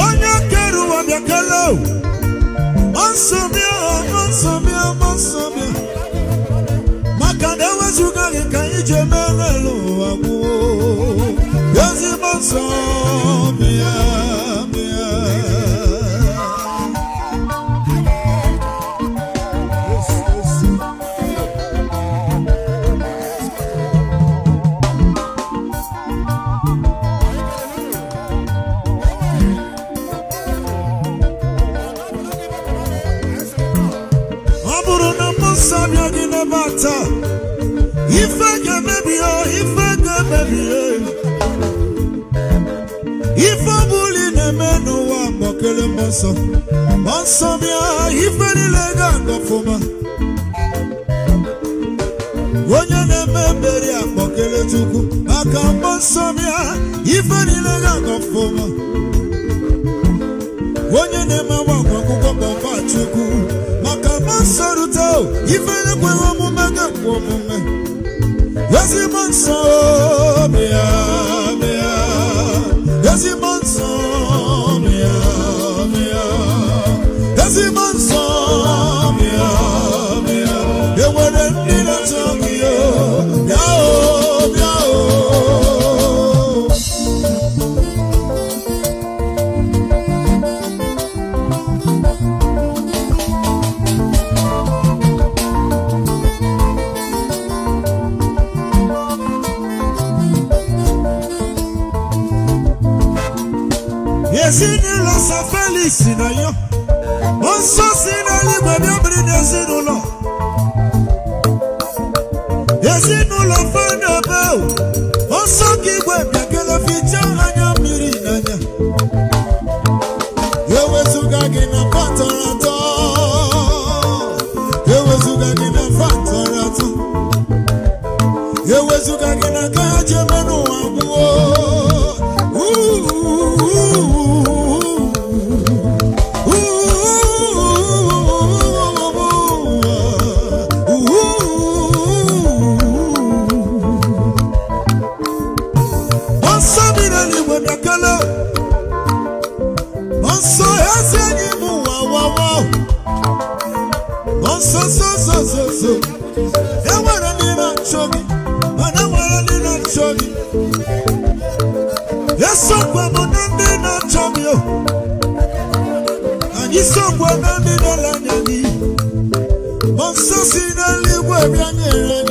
onye kere ụwa bịa kele mọnsọbịa mọnsọbịa mọnsọbịa maka na ewezuga gị ka anyị ji emere ụwa gwụo ezi mọnsọbịa n'ụwa wa mmụọ nsọ mmụọ nsọ bịa lega niile ga-aga ọfụma onye na-eme mmeri akpọkele Chukwu maka mmụọ nsọ bịa ife niile ga-aga ọfụma onye maka mmụọ nsọ rute ife ekweghị omume ga-ekwe omume ezigbo nsọ bịa bịa ezigbo nsọ Ensina eu. É? egwu abịa nyere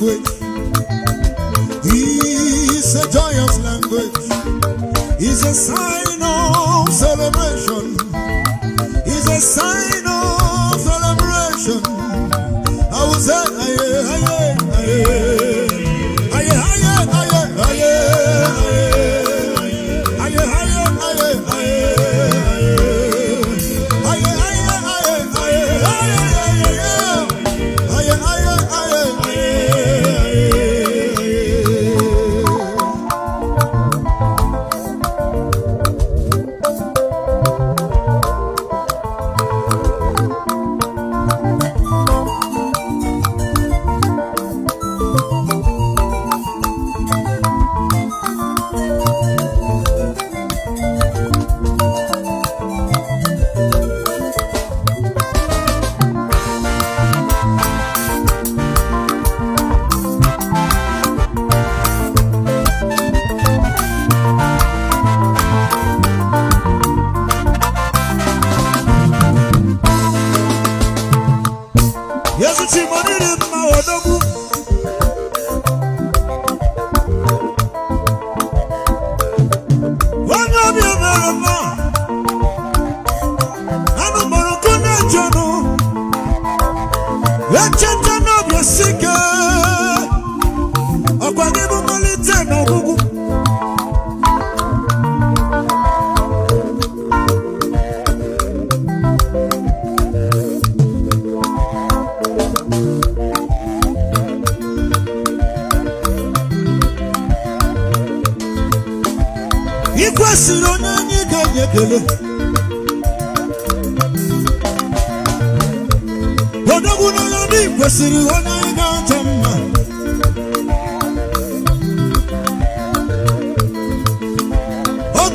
language. is a joyous language. is a sign of celebration. is a sign.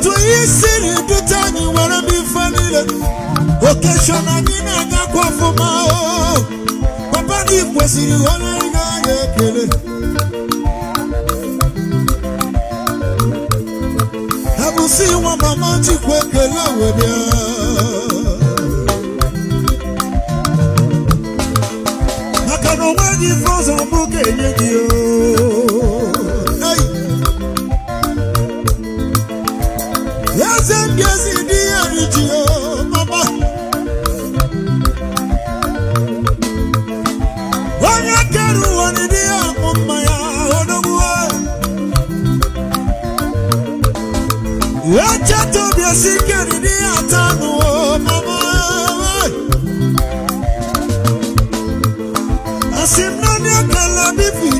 otu ihe you dute anyị were m ife niile okesho na gị na-agakwa ọfụma o oh, oh, oh. papa gị kwesịrị onye ị ga-anya ekele abụsị nwa mama chikwa ekele wee bịa maka na onwe gị frozen bụ ga-enye gị o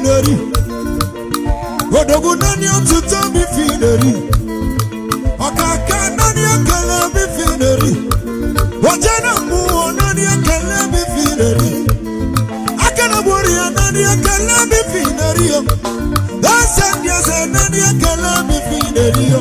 lórí òdògùn náà ni ó tún tó mi fi lórí ọ̀kàkà náà ni ọ̀kẹ́lẹ́ mi fi lórí ọjọ́ náà mú wọn náà ni ọ̀kẹ́lẹ́ mi fi lórí akẹ́lẹ́bùrì náà ni ọ̀kẹ́lẹ́ mi fi lórí o lọ́sẹ̀ ní ọ̀sẹ̀ náà ni ọ̀kẹ́lẹ́ mi fi lórí o.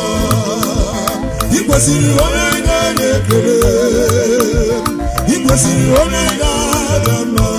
ikwesịrị onye ga-ekele ikwesịrị onye ga-ada mma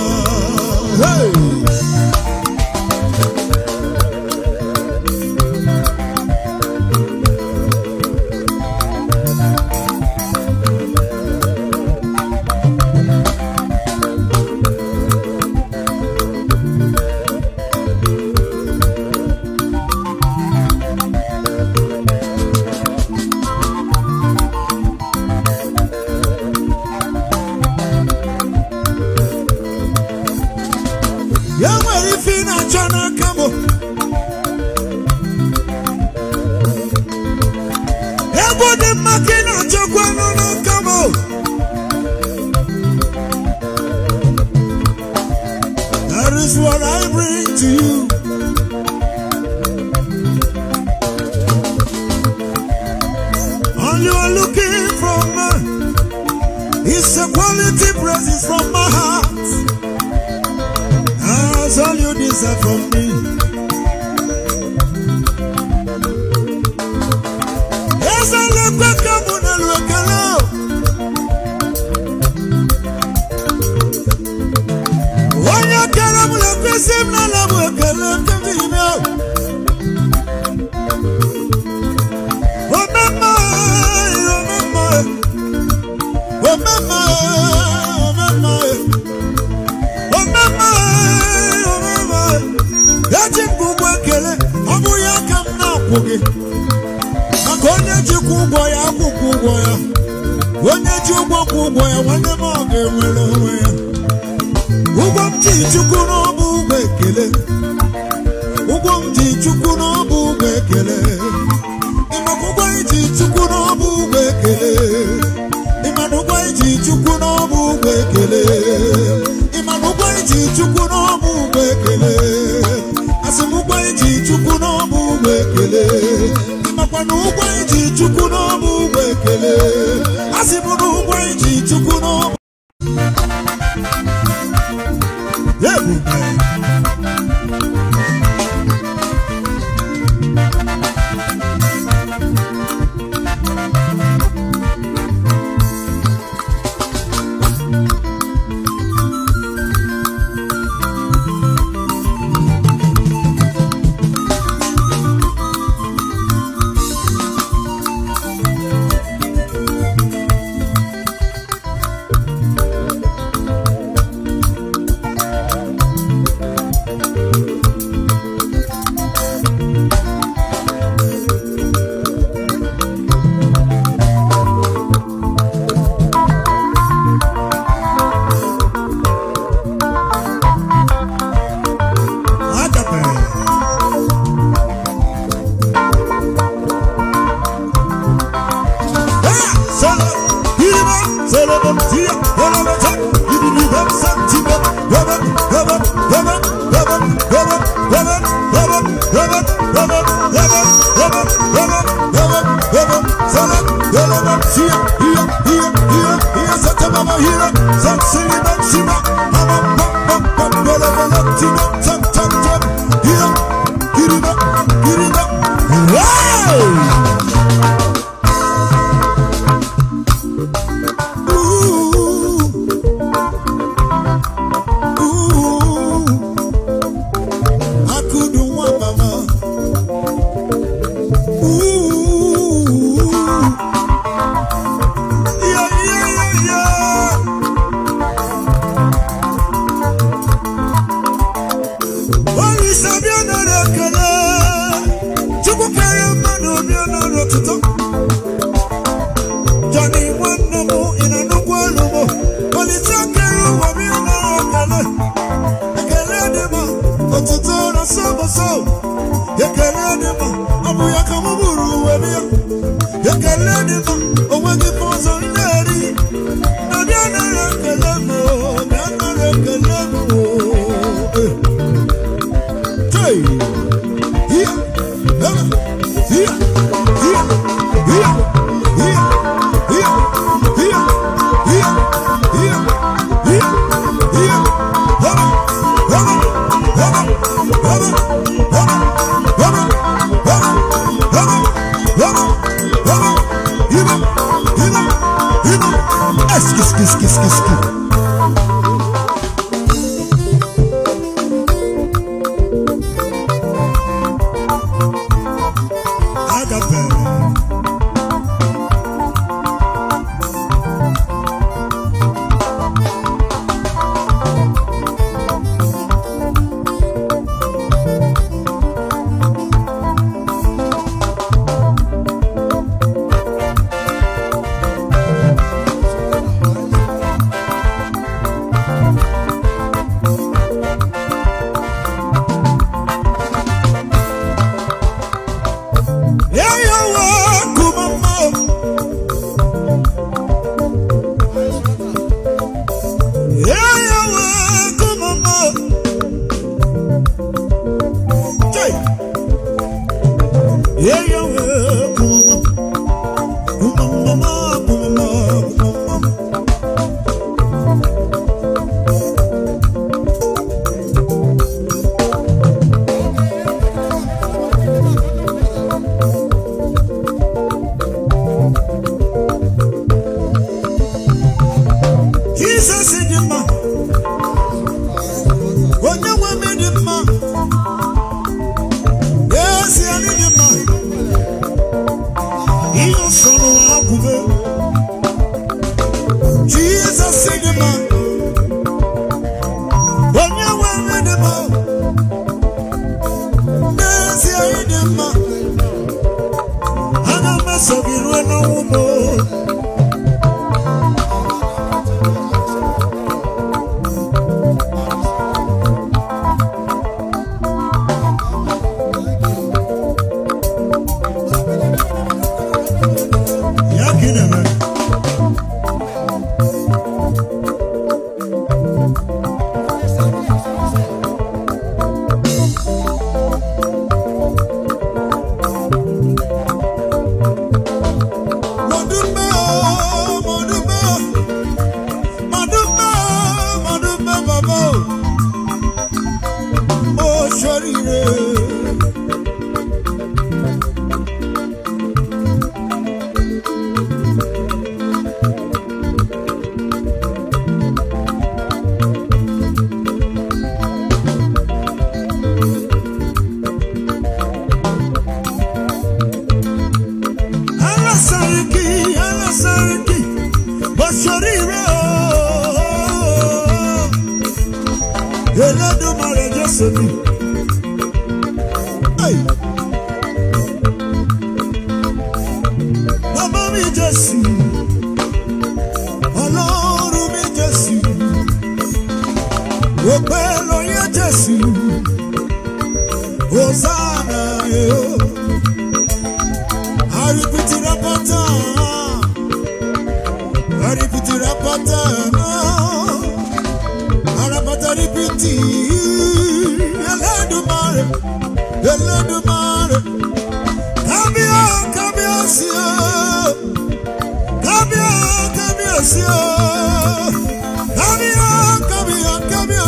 Ekpesi m n'ala bụ ekele ndị ome eji m ụgwọ ekele ọ bụ ya ka m na-akwụ maka onye kwụ ụgwọ ya akwụkwọ ụgwọ ya onye ji ụgwọ kwụ ụgwọ ya nwanne m ọ ga-enwere onwe ya ụgwọ m ji ekele ụgwọ m ji chukwu n'ọbụ ụgwọ ekele iji chukwu n'ọbụ ụgwọ ekele asị m ụgwọ iji chukwu n'ọbụ ụgwọ ekele no not Abuya come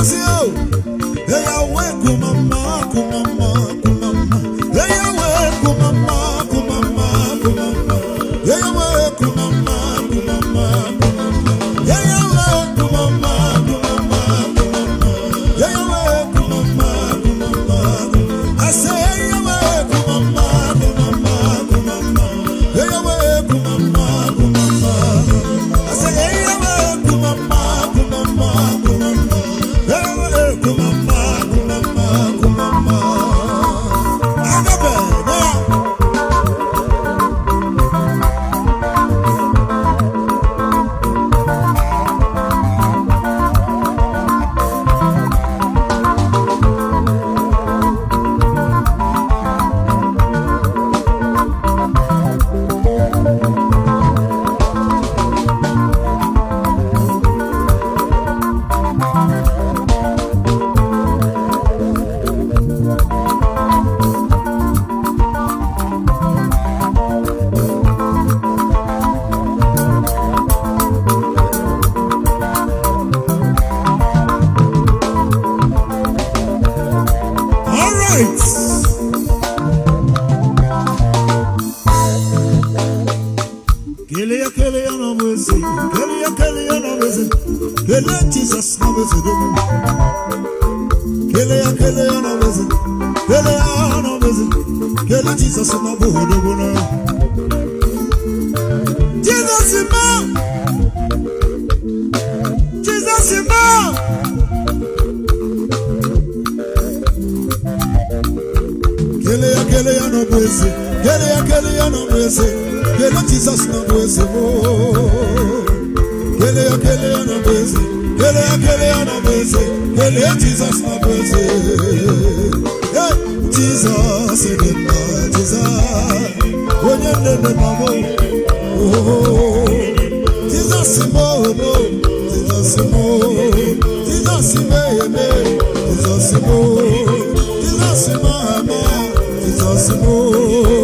sí o èèyàn wẹ́ẹ̀kùn Jesus, m Jesus, Jesus, onye Jesus, mama Jesus, m Jesus, jizọs Jesus, jizọs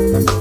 Thank you.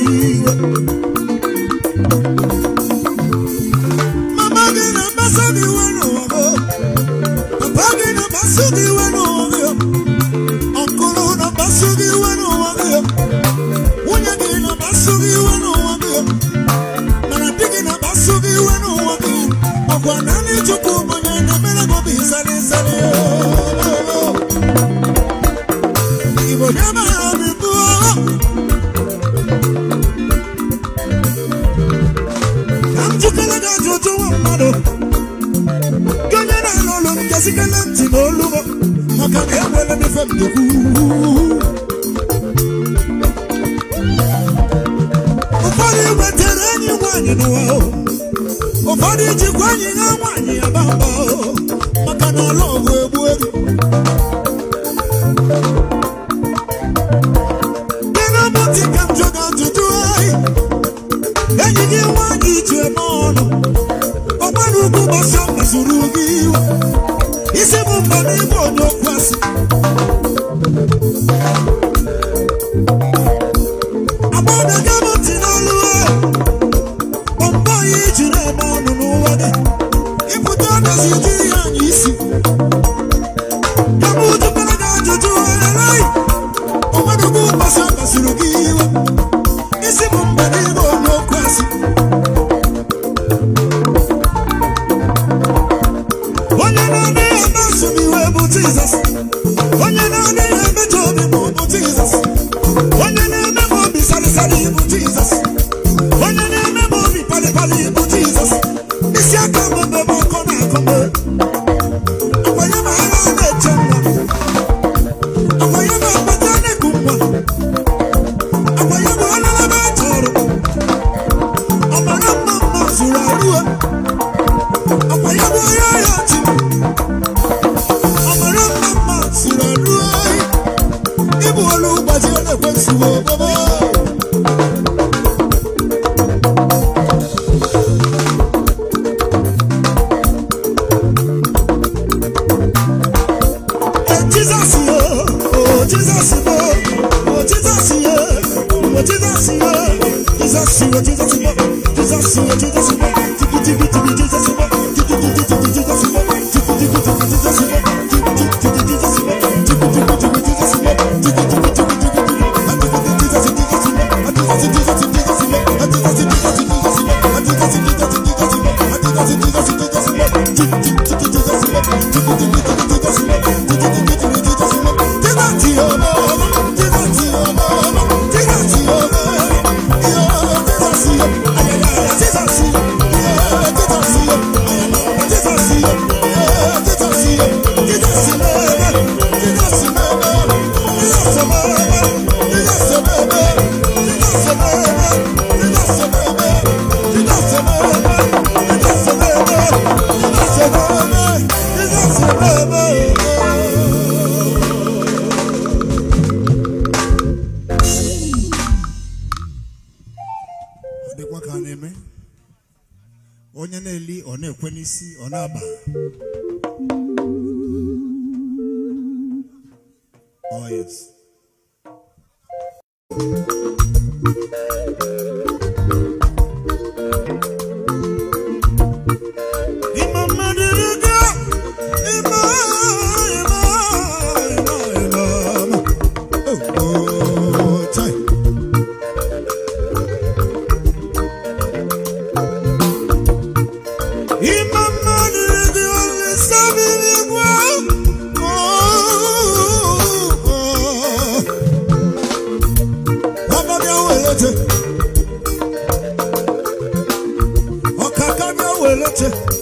Thank you. ije m ọnụ ọgbara ugwu gbasa mezuru gị iwe isi bụ mba n'ime onye okwu asị weleche ọkaka mi o weleche.